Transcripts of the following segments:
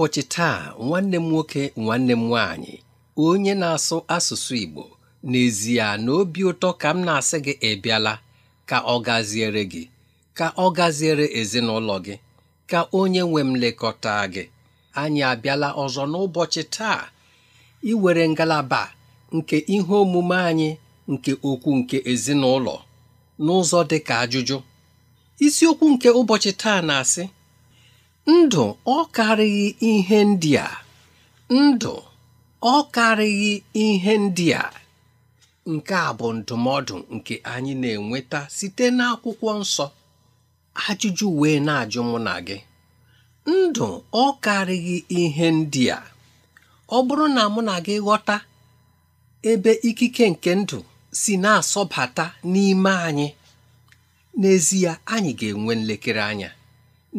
n'ụbọchị taa nwanne m nwoke nwanne m nwaanyị onye na-asụ asụsụ Igbo n'ezie na obi ụtọ ka m na-asị gị ịbịala ka ọ gaziere gị ka ọ gaziere ezinụlọ gị ka onye nwe m lekọta gị anyị abịala ọzọ n'ụbọchị taa iwere ngalaba nke ihe omume anyị nke okwu nke ezinụlọ n'ụzọ dị ajụjụ isiokwu nke ụbọchị taa na-asị ndụ ọ karịghị ihe ndị a ndụ ọ karịghị ihe ndị a nke a bụ ndụmọdụ nke anyị na-enweta site n'akwụkwọ nsọ ajụjụ wee na-ajụ mụ na gị ndụ ọ karịghị ihe ndị a ọ bụrụ na mụ na gị ghọta ebe ikike nke ndụ si na-asọbata n'ime anyị n'ezie anyị ga-enwe nlekere anya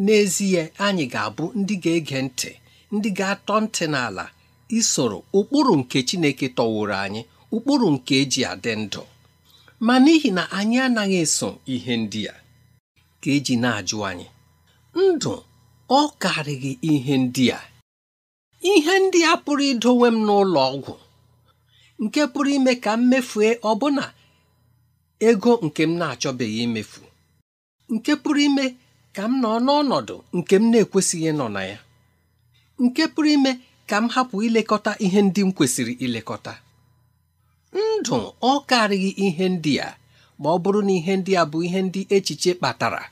n'ezie anyị ga-abụ ndị ga-ege ntị ndị ga-atọ ntị n'ala isoro ụkpụrụ nke Chineke tọwụrụ anyị ụkpụrụ nke eji adị ndụ ma n'ihi na anyị anaghị eso ihe ndị a ka eji na-ajụ anyị ndụ ọ karịghị ihe ndị a ihe ndị a pụrụ idowe m n'ụlọ ọgwụ nke pụrụ ime ka m mefue ọbụna ego nke m na-achọbeghị imefu nke pụrụ ime ka m nọ n'ọnọdụ nke m na-ekwesịghị ịnọ na ya nke pụrụ ime ka m hapụ ilekọta ihe ndị m kwesịrị ilekọta ndụ ọ karịghị ihe ndị a ma ọ bụrụ na ihe ndị a bụ ihe ndị echiche kpatara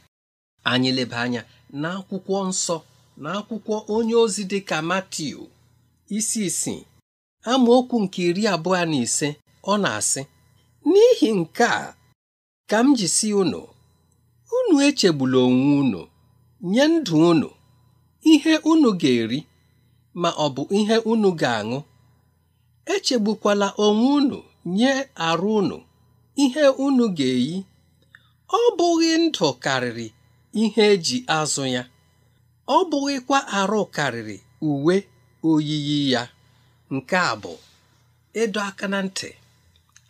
anyị leba anya n'akwụkwọ nsọ na akwụkwọ onye ozi dị ka Matiu isi isii amaokwu nke iri abụọ na ise ọ na-asị n'ihi nke a ka m ji unu unu echegbula onwe unu nye ndụ unu ihe unu ga-eri ma ọ bụ ihe unu ga-aṅụ echegbukwala onwe unu nye arụ unu ihe unu ga-eyi ọ bụghị ndụ karịrị ihe eji azụ ya ọ bụghịkwa arụ karịrị uwe oyiyi ya nke a bụ ịdọ aka na ntị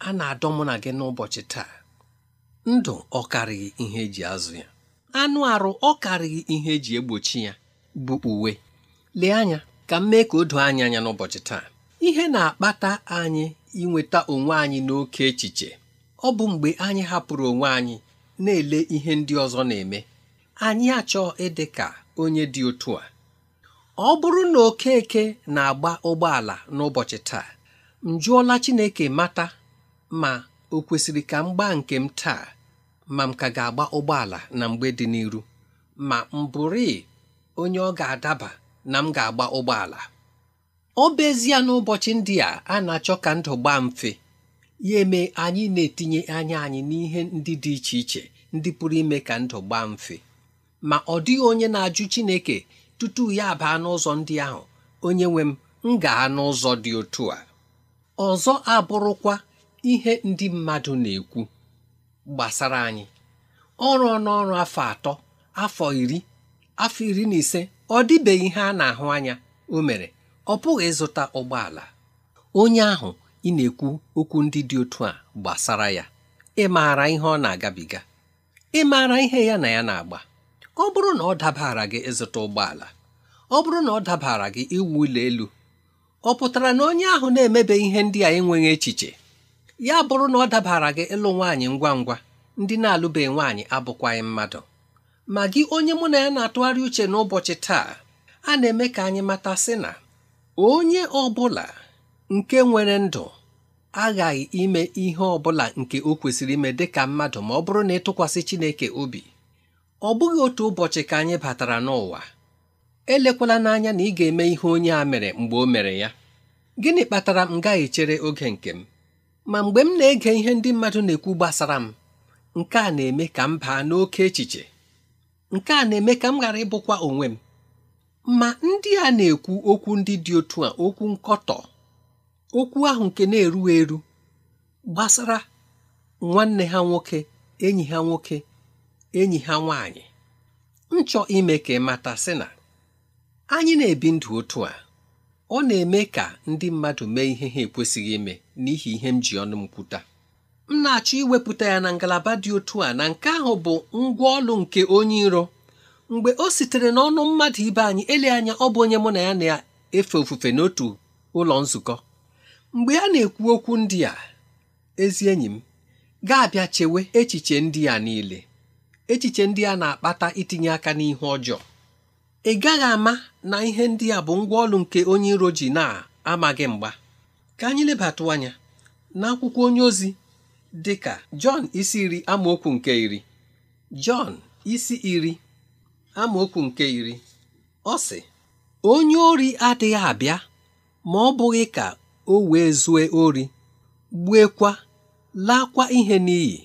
a na-adọ mụ na gị n'ụbọchị taa ndụ ọ karịghị ihe eji azụ ya anụ arụ ọ karịghị ihe eji egbochi ya bụ uwe lee anya ka m mee ka o doo anya anya n'ụbọchị taa ihe na-akpata anyị inweta onwe anyị n'oke echiche ọ bụ mgbe anyị hapụrụ onwe anyị na-ele ihe ndị ọzọ na-eme anyị achọ ịdị ka onye dị otu a ọ bụrụ na okeke na-agba ụgbọala n'ụbọchị taa m jụọla Chineke mata ma o kwesịrị ka m gbaa nke m taa ma m ka ga-agba ụgbọala na mgbe dị n'iru ma m bụrụ onye ọ ga-adaba na m ga-agba ụgbọala ọ bụezie n'ụbọchị ndị a a na-achọ ka ndụ gbaa mfe ya eme anyị na-etinye anya anyị n'ihe ndị dị iche iche ndị pụrụ ime ka ndụ gbaa mfe ma ọ dịghị onye na-ajụ Chineke tutu ya baa n'ụzọ ndị ahụ onye nwe m m gaa n'ụzọ dị otu a ọzọ abụrụkwa ihe ndị mmadụ na-ekwu gbasara anyị ọrụ n'ọrụ afọ atọ afọ iri afọ iri na ise ọ dịbeghị ihe a na-ahụ anya o mere ọ pụghị ịzụta ụgbọala onye ahụ ị na-ekwu okwu ndị dị otu a gbasara ya ị maara ihe ọ na-agabiga ị maara ihe ya na ya na-agba ọ bụrụ na ọ dabara gị ịzụta ụgbọala ọ bụrụ na ọ dabara gị iwu ụlọ elu ọ pụtara na onye ahụ na-emebe ihe ndị a enweghị echiche ya bụrụ na ọ dabara gị ịlụ nwaanyị ngwa ngwa ndị na-alụbeghị nwaanyị abụkwaghị mmadụ ma gị onye mụ na ya na-atụgharị uche n'ụbọchị taa a na-eme ka anyị mata sị na onye ọ bụla nke nwere ndụ aghaghị ime ihe ọ bụla nke o kwesịrị ime dị ka mmadụ ma ọ bụrụ na ịtụkwasị Chineke obi ọ bụghị otu ụbọchị ka anyị batara n'ụwa elekwala n'anya na ị ga-eme ihe onye a mere mgbe o mere ya gịnị kpatara m gaghị chere oge nke m ma mgbe m na-ege ihe ndị mmadụ na-ekwu gbasara m nke a na-eme ka m baa n'oke echiche nke a na-eme ka m ghara ịbụkwa onwe m ma ndị a na-ekwu okwu ndị dị otu a okwu nkọtọ okwu ahụ nke na-eru eru gbasara nwanne ha nwoke enyi ha nwoke enyi ha nwanyị nchọ ime ka ị sị na anyị na-ebi ndụ otu a ọ na-eme ka ndị mmadụ mee ihe ha ekwesịghị ime n'ihi ihe m ji ọnụ m kwuta m na-achọ iwepụta ya na ngalaba dị otu a na nke ahụ bụ ngwa ọlụ nke onye iro mgbe o sitere n'ọnụ mmadụ ibe anyị ele anya ọ bụ onye mụ na ya na-efe ofufe n'otu ụlọ nzukọ mgbe a na-ekwu okwu ndị a ezi enyi m ga-abịa chewe echiche ndị a niile echiche ndị a na-akpata itinye aka n'ihe ọjọọ ị gaghị ama na ihe ndị a bụ ngwa ọlụ nke onye iro ji na-amaghị mgba ka anyị lebatụ anya n'akwụkwọ onye ozi dị ka Jọn isi iri amaokwu nke iri Jọn isi iri amaokwu nke iri ọ sị onye ori adịghị abịa ma ọ bụghị ka o wee zue ori gbuekwa laakwa ihe n'iyi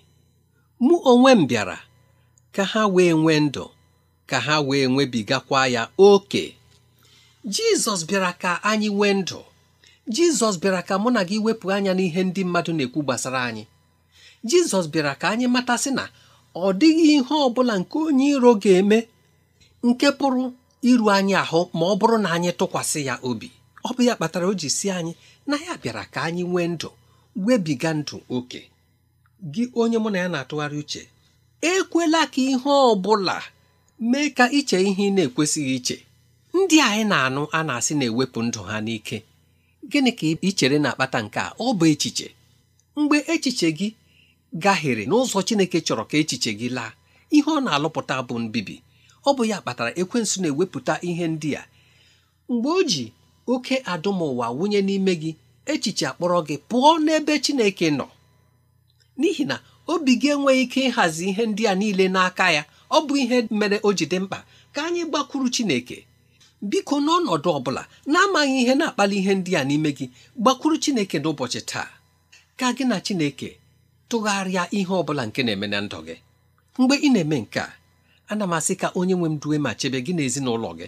mụ onwe m bịara ka ha wee nwee ndụ ka ha wee nwebigakwa ya oke jizọs bịara ka anyị nwee ndụ jizọs bịara ka mụ na gị wepụ anya n'ihe ndị mmadụ na-ekwu gbasara anyị jizọs bịara ka anyị matasị na ọ dịghị ihe ọ bụla nke onye iro ga-eme nke pụrụ iru anyị ahụ ma ọ bụrụ na anyị tụkwasị ya obi ọ bụ ya kpatara o ji si anyị na ya bịara ka anyị nwee ndụ webiga ndụ oke gị onye mụ na ya na-atụgharị uche ekwela ka ihe ọ bụla mee ka iche ihe ị na-ekwesịghị iche ndị anyị na-anụ a na-asị na-ewepụ ndụ ha n'ike gịnị ka ị chere na-akpata nke a ọ bụ echiche mgbe echiche gị gahiere n'ụzọ Chineke chọrọ ka echiche gị laa ihe ọ na-alụpụta bụ mbibi ọ bụ ya kpatara ekwensu na-ewepụta ihe ndị a mgbe o ji oke adụmụwa wụnye n'ime gị echiche akpọrọ gị pụọ n'ebe Chineke nọ n'ihi na obi gị enweghị ike ịhazi ihe ndị a niile n'aka ya ọ bụ ihe mere o ji dị mkpa ka anyị gbakwuru Chineke biko n'ọnọdụ ọ bụla na-amaghị ihe na-akpali ihe ndị a n'ime gị gbakwuru Chineke n'ụbọchị taa ka gị na Chineke tụgharịa ihe ọ bụla nke na-eme na ndụ gị mgbe ị na-eme nke a ana m asị ka onye nwe m duwe ma chebe gị na gị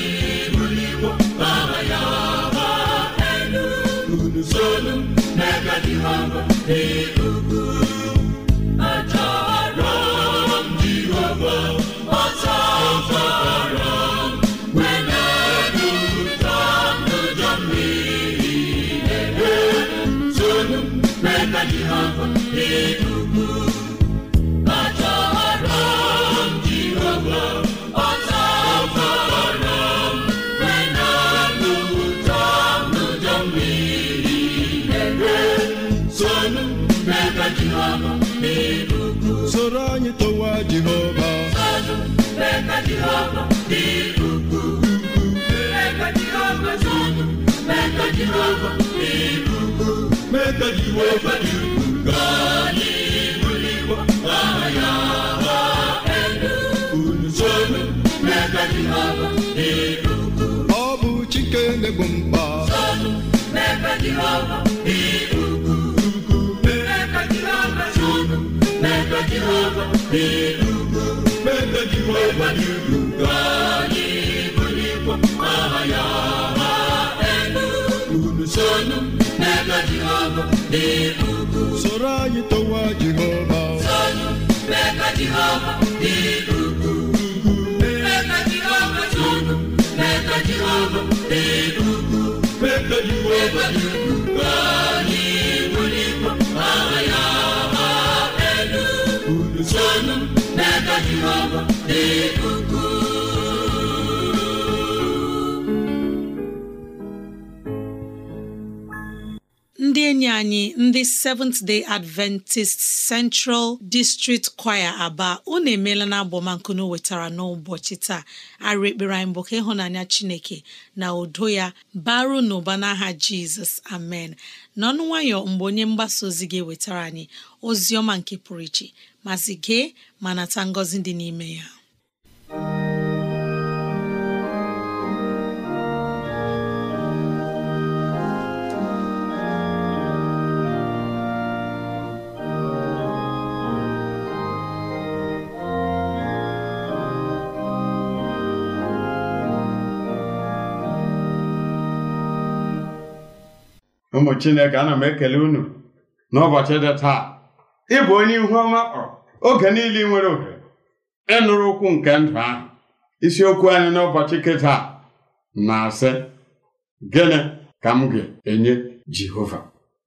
adịla m n'elu ugwu kadiwo bụ bụ mkpa Soro anyị towa Jehova. enyi anyị ndị Seventh Day Adventist Central District Choir Aba unu emeela na abọmankunu wetara n'ụbọchị taa arụ ekpere anyị bụ ka ịhụnanya Chineke na udo ya baru n'ụba n'aha Jizọs amen n'ọnụ nwayọ mgbe onye mgbasa ozi gị wetara anyị ozi ọma nke pụrụ iche mazi gee ma nata ngọzi dị n'ime ya ụmụ chineke ana m ekele unu n'ụbọchị dị taa ị bụ onye ihu ọma kpọrọ oge niile nwere ohere ịnụrụ ụkwụ nke ndụ ahụ isiokwu anyị n'ụbọchị kịta na-asị gịnị ka m ga-enye jehova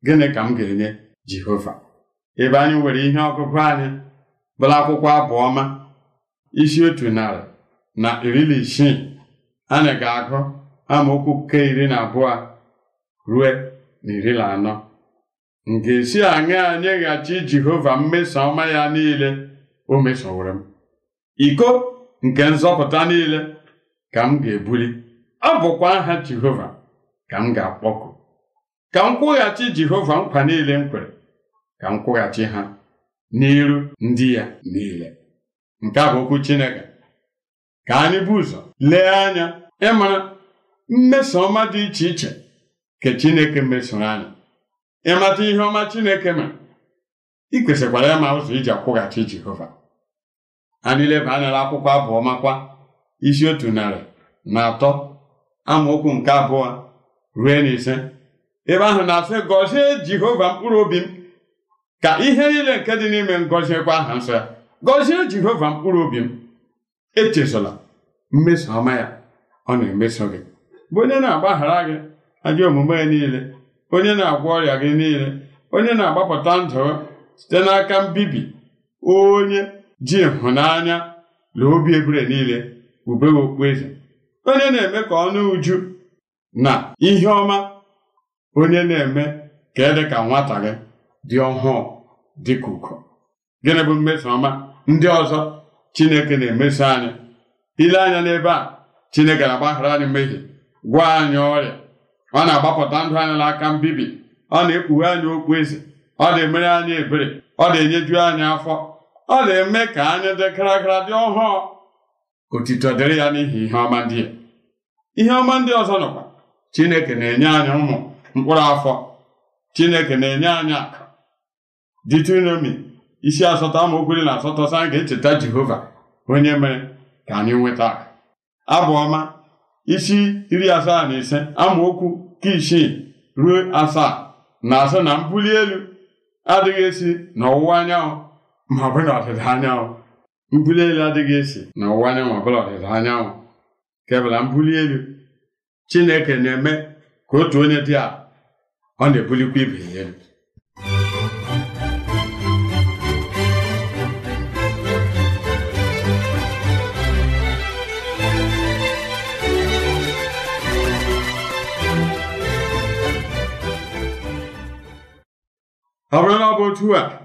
gịnị ka m ga-enye jehova ebe anyị nwere ihe ọgụgụ anyị bụla akwụkwọ abụọma isi otu narị na iri na isii anyị ga-agụ amaokwu nke iri na abụọ rue na na anọ m ga-esi aṅa nyeghachi Jehova mmeso ọma ya niile o mesowere m iko nke nzọpụta niile ka m ga-ebuli ọ bụkwa aha Jehova ka m ga-akpọku ka m kwụghachi Jehova nkwa niile m kwere ka m kwụghachi ha n'iru ndị ya niile nke a bụ okwu Chineke ka anyị bụ ụzọ lee anya ịmara mmeso ọma dị iche iche nke Chineke mesoro anyị ịmata ihe ọma Chineke ma ị kwesịkwara ịma ụzọ iji akwụghachi Jehova anyị leba anya akwụkwọ abụọ makwa isi otu narị na atọ amaokwu nke abụọ ruo na ise ebe ahụ na-asị gọzie Jehova mkpụrụ obi m ka ihe niile nke dị n'ime m aha nsọ ya gọzie Jehova mkpụrụ obi m echezola mmeso ọma ya ọ na-emeso gị bụ onye na-agbaghara gị ajọ omume niile onye na-agwọ ọrịa gị niile onye na-agbapụta ndụ site n'aka mbibi onye ji ịhụnanya na obi ebere niile ube okpueze onye na-eme ka ọnụ uju na ihe ọma onye na-eme ka ịdị e ka nwata gị dị ọhụụ dị ka gịnị bụ mmeso ọma ndị ọzọ Chineke na-emeso anyị ile anya n'ebe a Chineke na-agbaghara anyị mmehie gwa anyị ọrịa ọ na-agbapụta ndụ anyị n'aka mbibi ọ na-ekpughe anyị okpu eze ọ na-emere anyị ebere ọ na-enyeju anyị afọ ọ na-eme ka anyị dị karakara dị ọhụụ otito dịrị ya n'ihi ihe ọma ndị ya ihe ọma ndị ọzọ nọkwa chineke na-enye anyị ụmụ mkpụrụ afọ chineke na-enye anyị akụ ditronomi isi asatọ amaokwu iri na asatọ sị ga-echeta jehova onye mere ka anyị nweta abụ ọma isi iri asaa na ise amaokwu nke isii ruo asaa na asaa na mbuli elu adịghị esi n'ọwụwa anyanwụ ma ọ na ọdịda anyanwụ mbuli elu adịghị esi n'ọwụwa anyanwụ ma ọ bụrụ ọdịda anyanwụ kebụla mbuli elu Chineke na-eme ka otu onye dị a ọ na-ebulikwa ibe ya elu ọ bụrụ na ọ bụ otu a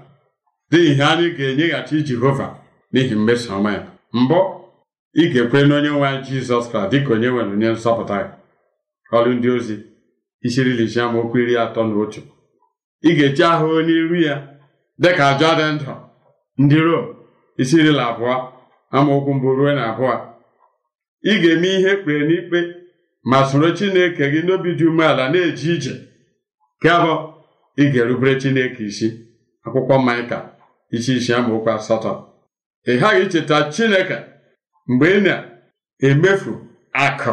dị ihe anyị ga-enyeghachi Jehova n'ihi mmeso ọma ya mbụ ị ga-ekwe na onye nwe anyị Jizọs Kraịst dịka onye nwere onye nsọpụta ya ọrụ ndị ozi isi iri ise okwu iri atọ na otu ị ga-eji ahụ onye n'iru ya dịka ajọ dị ndụ ndị Rom isi abụọ amaokwu mbụ ruo na abụọ ị ga-eme ihe kpere n'ikpe ma soro Chineke gị n'obi dị umeala na-eje ije nke ị ga-erubere Chineke isi akwụkwọ Maịka isi isi amaokwu asatọ ị ghaghị icheta Chineke mgbe ị na-emefu akụ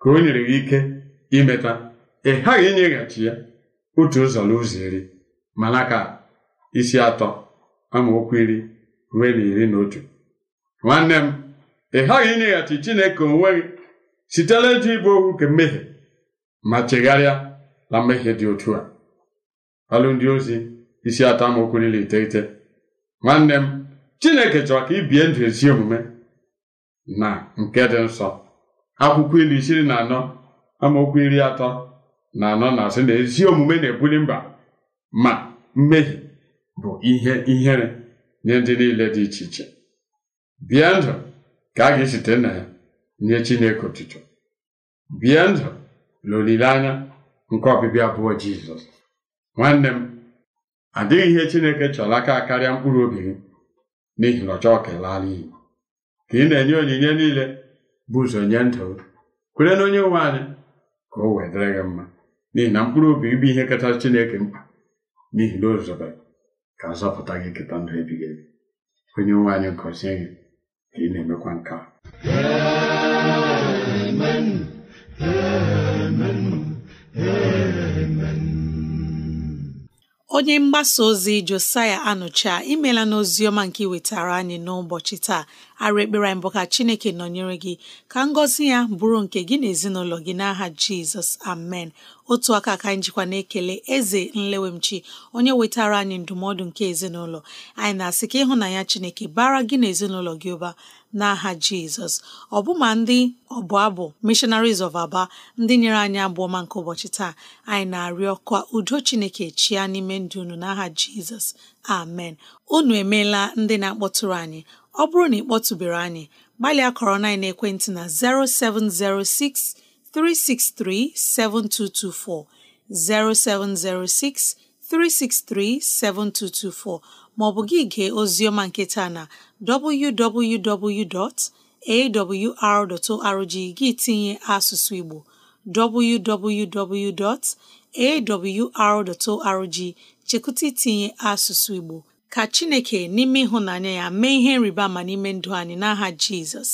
ka o nyere gị ike imeta ị ghaghị inyeghachi ya otu ụzọ n'ụzọ iri na-aka isi atọ amaokwu iri ruo na iri na otu nwanne m ị ghaghị inyeghachi Chineke onwe gị sitela ịjụ ịbụ okwu nke mmehie ma chegharịa na mmehie dị otu a ọlụ ndị ozi isi atọ amaokwu niile iteghete nwanne m chineke chọrọ ka ị ndụ ezi omume na nke dị nsọ akwụkwọ ilu isiri na anọ amaokwu iri atọ na anọ na asị na ezi omume na-ebuli mba ma mmehie bụ ihe ihere nye ndị niile dị iche iche bie ndụ ka a ga-esite na ya nye chineke otuto bie ndụ na olileanya nke ọbịbịa abụọ jizọs nwanne m adịghị ihe Chineke chọrọ aka karịa mkpụrụ obi gị n'ihi na ọ chọọ ka ka ị na-enye onyinye niile bụ ụzọ nye ndụ kwere na onye nwe anyị ka o wee dịrị gị mma n'ihi na mkpụrụ obi bụ ihe kachasị Chineke mkpa n'ihi na ozobe ka azọpụta gị keta ndụ ebighị ebi onye nwe anyị gọzie gị ka ị na-emekwa nke a Amen. Amen. Amen. onye mgbasa ozi Josaya Anụcha imela e n'ozi ọma nke iwetara anyị n'ụbọchị taa arụ ekpere anyị bụ ka chineke nọnyere gị ka ngọzi ya bụrụ nke gị na ezinụlọ gị n'aha jizọs amen otu aka ka anyị jikwa na-ekele eze nlewemchi onye wetara anyị ndụmọdụ nke ezinụlọ anyị na-asị ka ịhụnanya chineke bara gị na ezinụlọ gị ụba n'aha jizọs ọbụma ndị ọbụ abụ missionaries of aba ndị nyere anyị abụọ nke ụbọchị taa anyị na-arịọ ka udo chineke chia n'ime ndụ unu n'aha jizọs amen unu emeela ndị na-akpọtụrụ anyị ọ bụrụ na ị kpọtụbere anyị gbalịa kọrọ na ekwentị na 0706 363 7224 0706 363 7224 maọbụ gị gee oziọma nketa na www.awr.org gị tinye asụsụ Igbo www.awr.org chekụta itinye asụsụ Igbo ka chineke n'ime ịhụnanya ya mee ihe nrịba ma n'ime ndụ anyị n'aha jizọs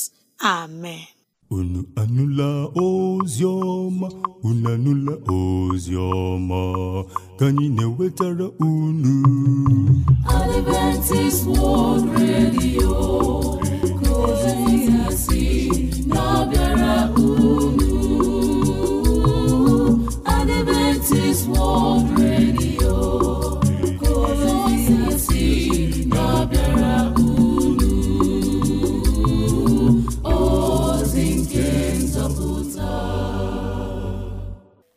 amen unu anụla ozi ọma unu anụla ozi ọma ka anyị na-ewetara unu Adventist World Radio si na-abịara unu Adventist World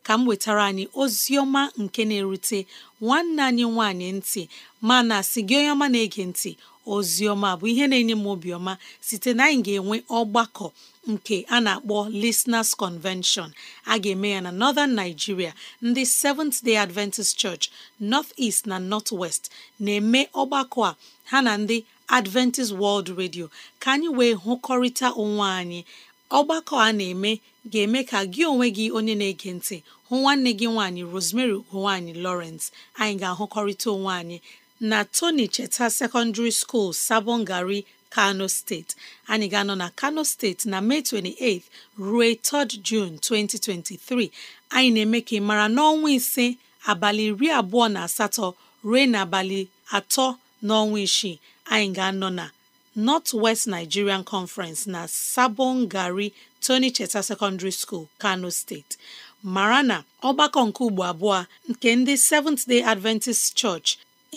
ka m wetara anyị Ozioma nke na-erute nwanne anyị nwanyị ntị mana si gị onye ọma na-ege ntị Ozioma bụ ihe na-enye m obiọma site na anyị ga-enwe ọgbakọ nke a na-akpọ Listeners Convention a ga-eme ya na Northern Nigeria ndị Seventh Day Adventist Church North East na North West na-eme ọgbakọ a ha na ndị Adventist World Radio ka anyị wee hụkọrịta onwe anyị ọgbakọ a na-eme ga-eme ka gị onwe gị onye na-ege ntị hụ nwanne gị nwaanyị Rosemary ugonwaanyị Lawrence anyị ga-ahụkọrịta onwe anyị na Tony Cheta Secondary School Sabongari Kano steeti anyị ga-anọ na Kano steeti na Mee 28 ruo 3 June 2023 anyị na-eme ka ị mara n'ọnwa ise abalị iri abụọ na asatọ ruo n'abalị atọ n'ọnwa isii anyị ga-anọ na North West Nigerian Conference na Sabon Tony Cheta Secondary School, Kano State mara na ọgbakọ nke ugbo abụọ nke ndị Seventh Day Adventist Church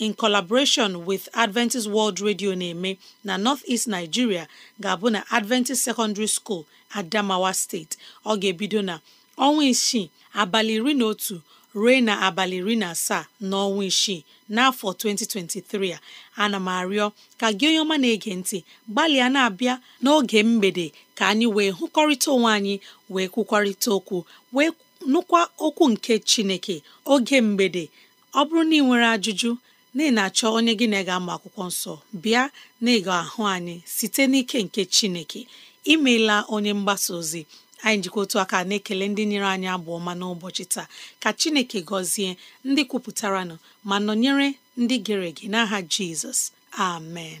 in collaboration with Adventist World Radio na-eme na North-East Nigeria ga-abụ na Adventist Secondary School Adamawa State ọ ga-ebido na ọnwa isii abalị iri na otu ruo na abalị iri na asaa n'ọnwa isii n'afọ 2023 a ana m arịọ ka gị onye ọma na-ege ntị gbalịa na-abịa n'oge mgbede ka anyị wee hụkọrịta onwe anyị wee kwukwarịta okwu wee nụkwa okwu nke chineke oge mgbede ọ bụrụ na ị nwere ajụjụ na ị na-achọ onye gị na ị ga-ama akwụkwọ nsọ bịa na ịga ahụ anyị site n'ike nke chineke imeela onye mgbasa ozi anyị jikọ otu aka na-ekele ndị nyere anyị abụ ọma n'ụbọchị taa ka chineke gọzie ndị kwupụtaranụ ma nọnyere ndị gere ege n'aha jizọs amen